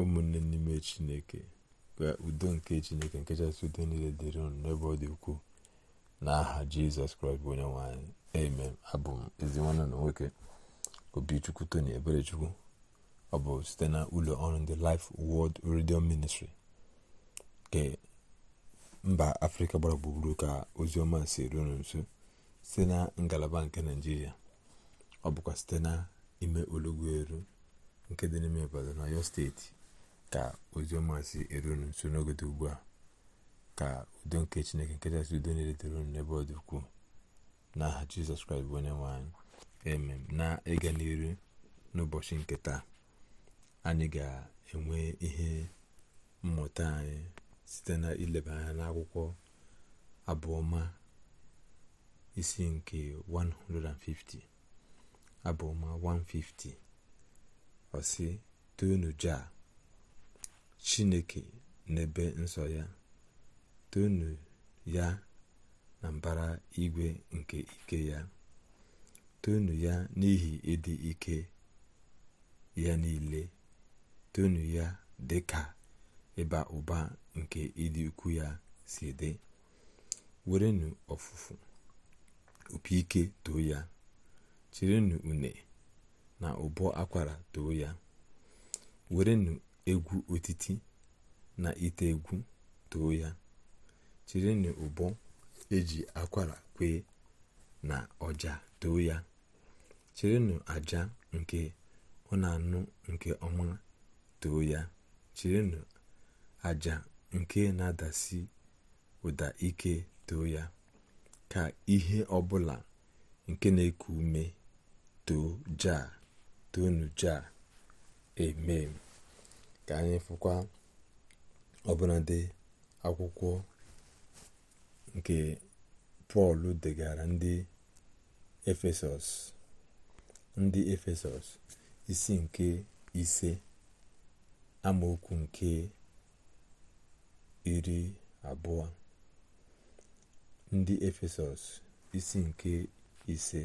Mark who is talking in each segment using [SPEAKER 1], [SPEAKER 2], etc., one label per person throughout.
[SPEAKER 1] ụmụnne n'ime chineke ka udo nke chineke nke chasị udo niile dịrị unu n'ebe ọ dị ukwuu n'aha jizọs kraịst bụ onye nwanyị amen abụ m ezi nwanne na nwoke obichukwu tony eberechukwu ọ bụ site na ụlọ ọrụ ndị Life wọld Radio Ministry nke mba afrịka gbara gburugburu ka ozi ọma si ruo nso site na ngalaba nke naijiria ọ bụkwa site na ime olugbu eru nke dị n'ime Ibadan na Ọyọ steeti ka oziọma si erunu nso n'ogodo ugbu a ka udo nke chineke nkechasị udo na-eletere unu n'ebe ọ dị ukwuu n'aha jizọs kraịst bụ onye nwanyị anyị na ịga n'iru n'ụbọchị nke taa anyị ga-enwe ihe mmụta anyị site na ileba anya n'akwụkwọ abụọma isi nke 150 abụọma 150 ọsị toonu jaa chineke n'ebe nsọ ya tonu ya na mbara igwe nke ike ya tonu ya n'ihi ịdị ike ya niile tonu ya dị ka ịba ụba nke ịdị ukwu ya si dị werenu ọfụfụ opi ike too ya chirinu une na ụbọ akwara too ya werenu egwu otiti na ite egwu too ya chirinụ ụbọ eji akwara kwee na ọja too ya chirinụ aja nke ọ anụ nke ọma too ya chirinụ aja nke na-adasi ụda ike too ya ka ihe ọbụla nke na-eku ume too jaa toonu eme ka anyị fụkwa ọbụnadị akwụkwọ nke pọl degara ndị efesọs ndị efesọs isi nke ise amaokwu nke iri abụọ ndị efesọs isi nke ise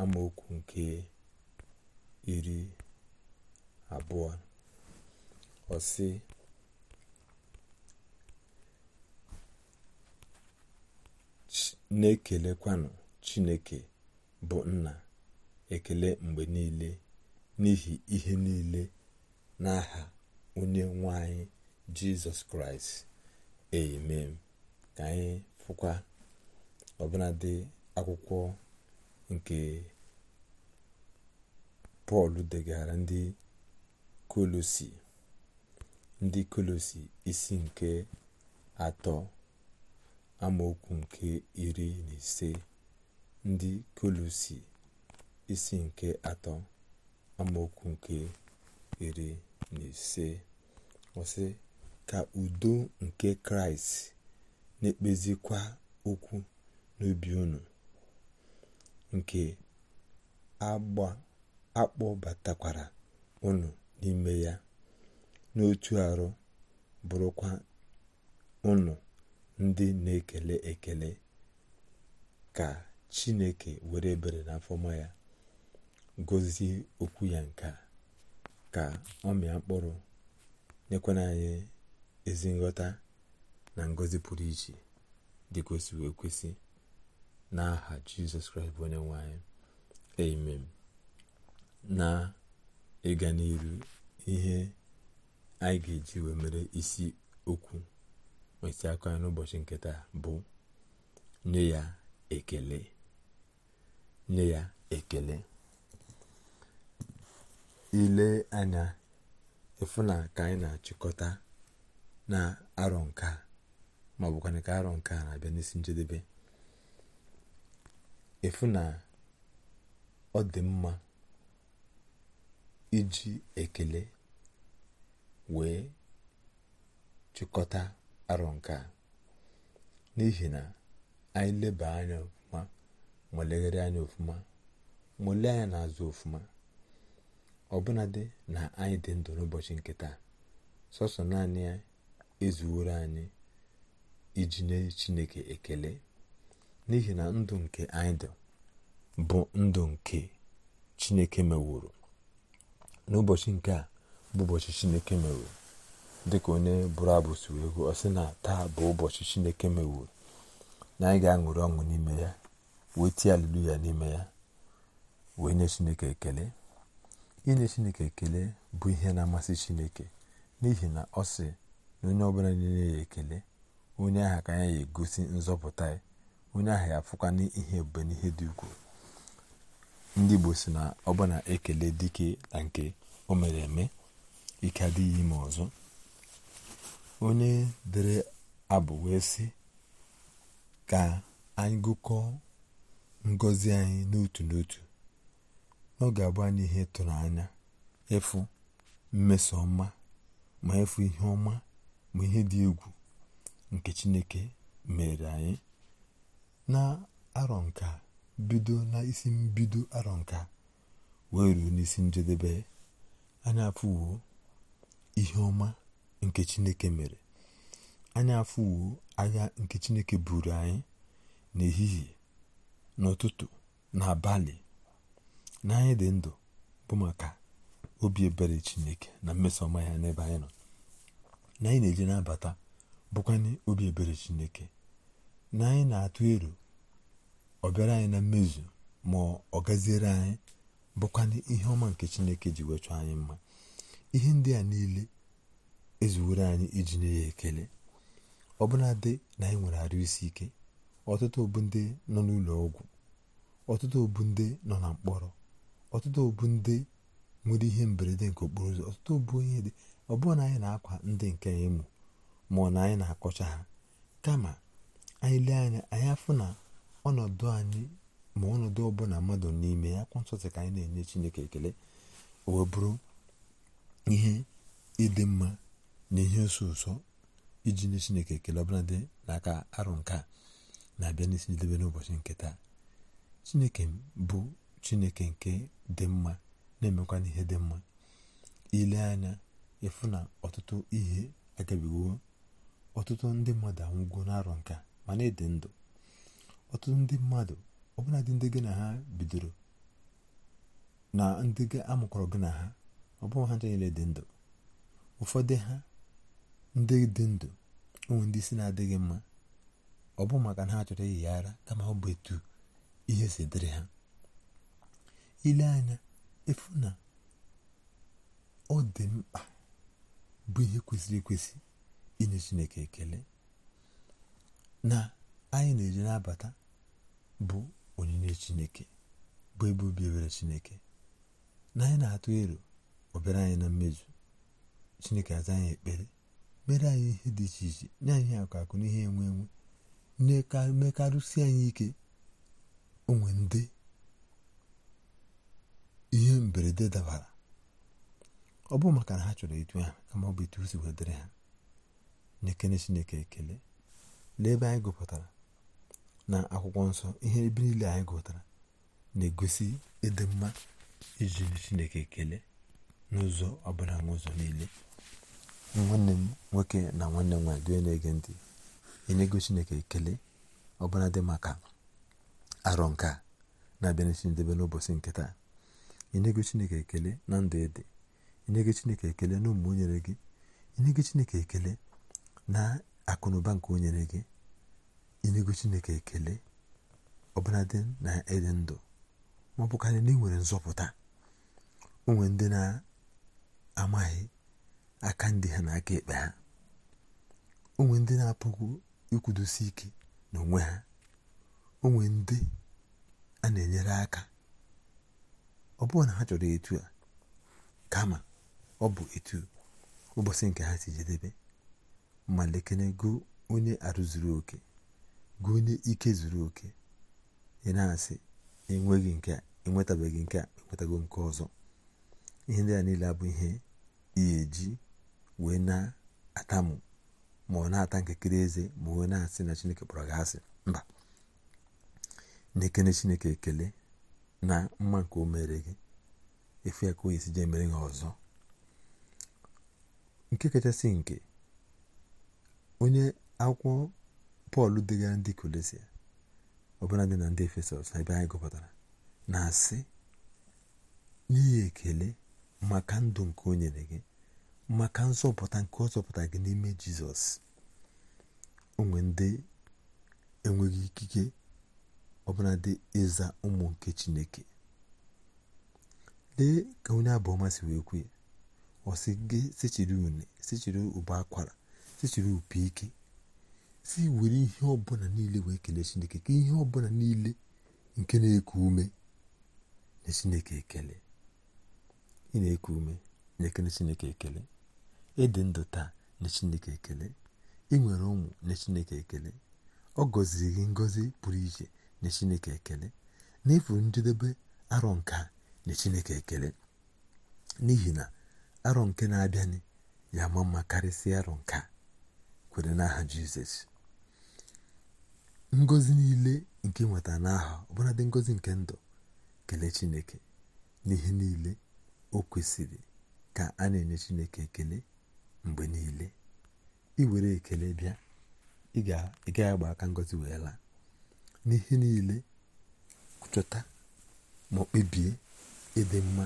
[SPEAKER 1] amaokwu nke iri abụọ ọ sị na-ekelekwanụ chineke bụ nna ekele mgbe niile n'ihi ihe niile n'aha onye nwanyị jizọs kraịst amen ka anyị fụkwa ọbụladị akwụkwọ nke pọl degara ndị kolosi ndị kolosi isi nke atọ amaokwu nke iri na ise ndị kolosi isi nke atọ amaokwu nke iri na ise ọsị ka udo nke kraịst na-ekpezikwa okwu n'obi unu nke akpọbatakwara unu n'ime ya n'otu arụ bụrụkwa ụlọ ndị na-ekele ekele ka chineke were ebere na afọma ya gọzie okwu ya nke a ka ọ mịa mkpụrụ nyekwana anyị ezi nghọta na ngọzi pụrụ iche dị kwesịrị ekwesị n'aha jizọs kraịst bụ onye nwanyị amen na ịga n'iru ihe anyị ga-eji wee mere isi okwu esi akụ anyị n'ụbọchị nke taa bụ nye ya ekele nye ya ekele ile anya ịfụ na ka anyị na-achịkọta na arọ nke a ma ọ bụkwa ka arọ nke a na-abịa n'isi njedebe ịfụ na ọ dị mma iji ekele wee chịkọta arọ nke a n'ihi na anyị leba anya ọfụma ma legharị anya ọfụma ma anyị anya n'azụ ọfụma ọbụnadị na anyị dị ndụ n'ụbọchị nke taa sọsọ naanị ya ezuworo anyị iji nye chineke ekele n'ihi na ndụ nke anyị dị bụ ndụ nke chineke mewuru n'ụbọchị nke a bụ ụbọchị chineke mewe dịka onye bụrụ abụ si wee gụọ ọ sị na taa bụ ụbọchị chineke mewe na anyị ga-aṅụrị ọṅụ n'ime ya wee tie ya n'ime ya wee nye chineke ekele inye chineke ekele bụ ihe na-amasị chineke n'ihi na ọ sị na onye ọbụla na-enye ya ekele onye agha ka ya egosi nzọpụta ya onye aha ya afụkwa n'ihe ebube n'ihe dị ukwuu ndị igbo si na ọbụna ekele dike na nke o mere eme ike adịghị ime ọzọ onye dere abụ wee sị ka anyị gụkọọ ngọzi anyị n'otu n'otu ọ ga-abụ anyị ihe tụrụ anya ịfụ mmeso ọma ma ịfụ ihe ọma ma ihe dị egwu nke Chineke mere anyị na arọ nka bido na isi mbido arọ nka wee ruo n'isi njedebe anyị afụwo ihe ọma nke chineke mere anyị afụwo agha nke chineke buru anyị n'ehihie n'ụtụtụ n'abalị na anyị dị ndụ bụ maka obi ebere chineke na ọma ya n'ebe anyị nọ na anyị na-eje n'abata bụkwanye obi ebere chineke na anyị na-atụ ero ọ bịara anyị na mmezu ma ọ gaziere anyị bụkwanye ihe ọma nke chineke ji wechọ anyị mma ihe ndị a niile ezuwere anyị iji nye ya ekele ọbụnadị na anyị nwere arụ isi ike ọtụtụ obu ndị nọ n'ụlọ ọgwụ ọtụtụ obu ndị nọ na mkpọrọ ọtụtụ obu ndị nwere ihe mberede nke okporo ụzọ ọtụtụ obu onye dị ọ na anyị na-akwa ndị nke ịmụ ma ọ na anyị na-akọcha ha kama anyị lee anya anyị afụ na ọnọdụ anyị ma ọnọdụ ọbụla mmadụ n'ime ya kwa nsọtụ ka anyị na-enye Chineke ekele o wee bụrụ ihe ịdị mma na ihe nso ụsọ iji nye chineke ekele ọbụla dị n'aka arụ nke na-abịa n'isi njedebe n'ụbọchị nke taa chineke bụ chineke nke dị mma na-emekwa n'ihe dị mma ile anya ịfụ na ọtụtụ ihe agabigo ọtụtụ ndị mmadụ anwụgo n'arọ nka mana ịdị ndụ ọtụtụ ndị mmadụ ọbụladị ndị gị na ha bidoro na ndị amụkọrọ gị na ha ọ bụghị ha niile dị ndụ ụfọdụ ha ndị dị ndụ ụmụ ndị isi na-adịghị mma ọ bụ maka na ha chọrọ iyi ara kama ọ bụ etu ihe si dịrị ha ile anya efu na ọ dị mkpa bụ ihe kwesịrị ekwesị inye chineke ekele na anyị na-eji na-abata bụ onyinye chineke bụ ebe obi ebere chineke na anyị na-atụ ero ọ bịara anyị na mmezu chineke aza anyị ekpere mere anyị ihe dị iche iche nye anyị akụ akụ n'ihe enwe enwe mekarụsi anyị ike onwe ndị ihe mberede dabara ọ bụ maka na ha chọrọ itu ha kama ọ bụ itu si wedịrị ha na chineke ekele lee ebe anyị gụpụtara na akwụkwọ nsọ ihe ebe niile anyị gụpụtara na-egosi ịdị mma iji chineke ekele n'ụzọ ọbụla n'ụzọ niile nwanne m nwoke na nwanne m nwaanyị onye na-ege ntị enyego chineke ekele ọbụla dị maka arọ nke a na-abịa n'isi ndebe n'ụbọchị nke taa enyego chineke ekele na ndụ ede enyego chineke ekele na ụmụ onyere gị enyego chineke ekele na akụnụba nke onyere gị enyego chineke ekele ọbụladị na ịdị ndụ ma ọ na ị nwere nzọpụta onwe ndị na amaghị aka ndị ha na aka ekpe ha onwe ndị na-apụghị ikwudosi ike n'onwe ha onwe ndị a na-enyere aka ọ bụrụ na ha chọrọ etu a kama ọ bụ etu ụbọchị nke ha si jedebe ma lekene go onye arụ zuru oke go onye ike zuru oke ị na-asị enweghị nke a enwetabeghị nke a enwetago nke ọzọ ihe ndị a niile abụ ihe ihe eji wee na atamu ma ọ na-ata nkekere eze ma wee na-asị na chineke kpọrọ gị asị mba na-ekele chineke ekele na mma nke o mere gị efu ya ka o yesi jee mere gị ọzọ nke kachasị nke onye akwụkwọ pọl degara ndị kolesia ọbụla dị na ndị efesọs ebe anyị gụpụtara na-asị n'ihi ekele maka ndụ nke o nyere gị maka nzọpụta nke ọ zọpụta gị n'ime jizọs onwe ndị enweghị ikike ọbụla dị ịza ụmụ nke chineke lee ka onye abụọma si wee kwuo ọsị gị sechiri une sechiri ụba akwara sechiri opi ike si were ihe ọbụla niile wee kelee chineke ka ihe ọbụla niile nke na-eku ume na chineke ekele ị na-eku ume na-ekele chineke ekele ịdị ndụ taa na chineke ekele ị nwere ụmụ na chineke ekele ọ gọziri gị ngọzi pụrụ iche na chineke ekele n'efu njedebe arọ nke na chineke ekele n'ihi na arọ nke na-abịanị ya ma mma karịsịa arọ nke kwere n'aha jizọs ngozi niile nke nweta n'aha ọbụladị ngozi nke ndụ kelee chineke n'ihe niile o kwesịrị ka a na-enye chineke ekele mgbe niile iwere ekele bịa ị agba aka ngozi wee laa n'ihe niile chọta ma ọ kpebie ịdị mma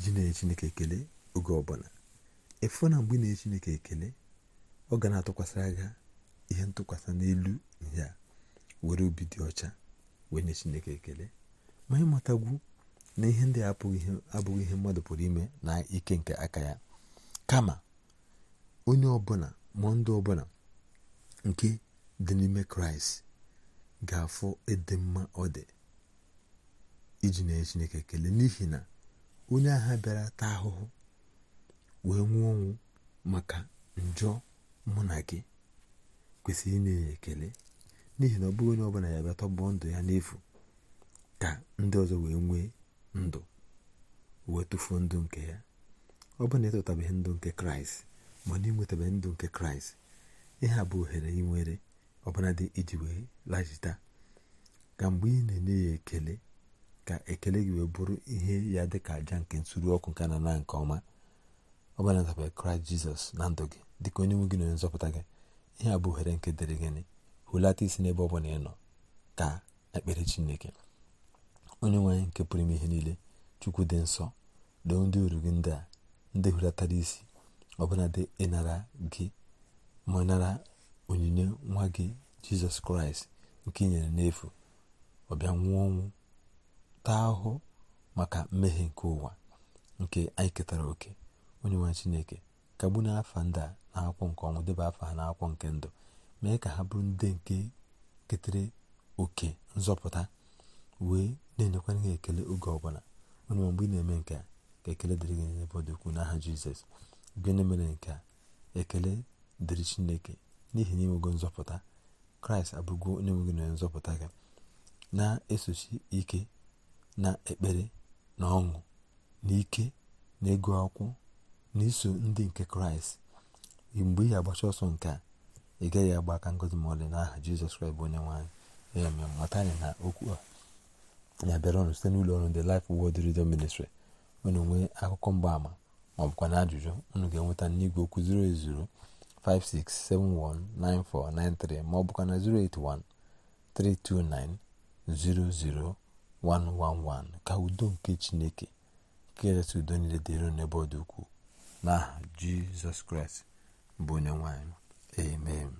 [SPEAKER 1] ji na-enye chineke ekele oge ọbụla efu na mgbe na-enye chineke ekele ọ ga na-atụkwasịra ga ihe ntụkwasị n'elu a were obi dị ọcha wee nye chineke ekele ma ịmatagwu na ihe ndị a abụghị ihe mmadụ pụrụ ime na ike nke aka ya kama onye ọbụla ma ndụ ọbụla nke dị n'ime kraịst ga-afụ ịdị mma ọ dị iji na chineke kelee n'ihi na onye agha bịara taa ahụhụ wee nwụọ ọnwụ maka njọ mụ na gị kwesịrị na enye ekele n'ihi na ọ bụghị onye ọbụla ya bịa tọgbọọ ndụ ya n'efu ka ndị ọzọ wee nwee ndụ wee tụfuo ndụ nke ya ọ bụrụ na ịtụtabeghị ndụ nke kraịst ma na ịnwetabeghị ndụ nke kraịst ihe a bụ ohere ị nwere iji wee lajita ka mgbe ị na-enye ya ekele ka ekele gị wee bụrụ ihe ya dị ka aja nke nsuru ọkụ nke na nke ọma ọ bụla kraịst jizọs na ndụ gị dịka onye nwe gị na onye nzọpụta gị ihe a bụ ohere nke dịrị gịnị hụlata isi n'ebe ọ bụla ị nọ ka ekpere chineke onye nwanyị nke pụrụ ime ihe niile chukwu dị nsọ doo ndị uru gị ndị a ndị hulatara isi ọbụladị ịnara gị ma onyinye nwa gị jizọs kraịst nke i nyere n'efu ọbịa nwụọ ọnwụ taa ahụhụ maka mmehie nke ụwa nke anyị ketara oke onye nwe chineke kagbu na afa ndị a na-akwụkwọ nke ọnwụ deba afọ ha n'akwụkwọ nke ndụ mee ka ha bụrụ ndị nke ketere oke nzọpụta wee na-enyekwara gị ekele oge ọbụla onye mgbe ị na-eme nke a ka ekele dịrị gị n'ebe ọ dị ukwuu n'aha jizọs gị onye mere nke a ekele dịrị chineke n'ihi na inwego nzọpụta kraịst abụgo onye nwe na nzọpụta gị na-esochi ike na ekpere na ọṅụ na ike na ego akwụkwọ na iso ndị nke kraịst mgbe ị agbacha ọsọ nke a ị gaghị agba aka ngozi ma ọlị n'aha jizọs kraịst bụ onye nwe anyị ya mata anyị na okwu a na-abịarọnụ site n'ụlọ ọrụ ndị Life Word Radio Ministry unu nwee akụkọ mgbaama ma ọ bụkwa na ajụjụ unu ga-enweta n'igwe okwu 08056719493 ma ọ bụkwa na 08132900111 ka udo nke Chineke nke udo niile dịrị n'ebe ọ dị ukwuu n'aha Jizọs Kraịst bụ onye nwanyị amen